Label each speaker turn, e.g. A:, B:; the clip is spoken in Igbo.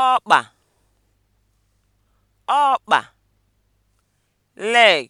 A: ọkpa ọkpa leg